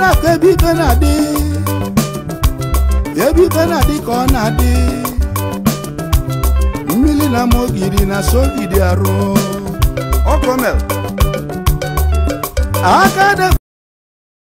na-afọ ebe ife na-adị ebe ife na-adị ka ọ na-adị mmiri na ma ogiri na sogidi arụ ọkọmel aka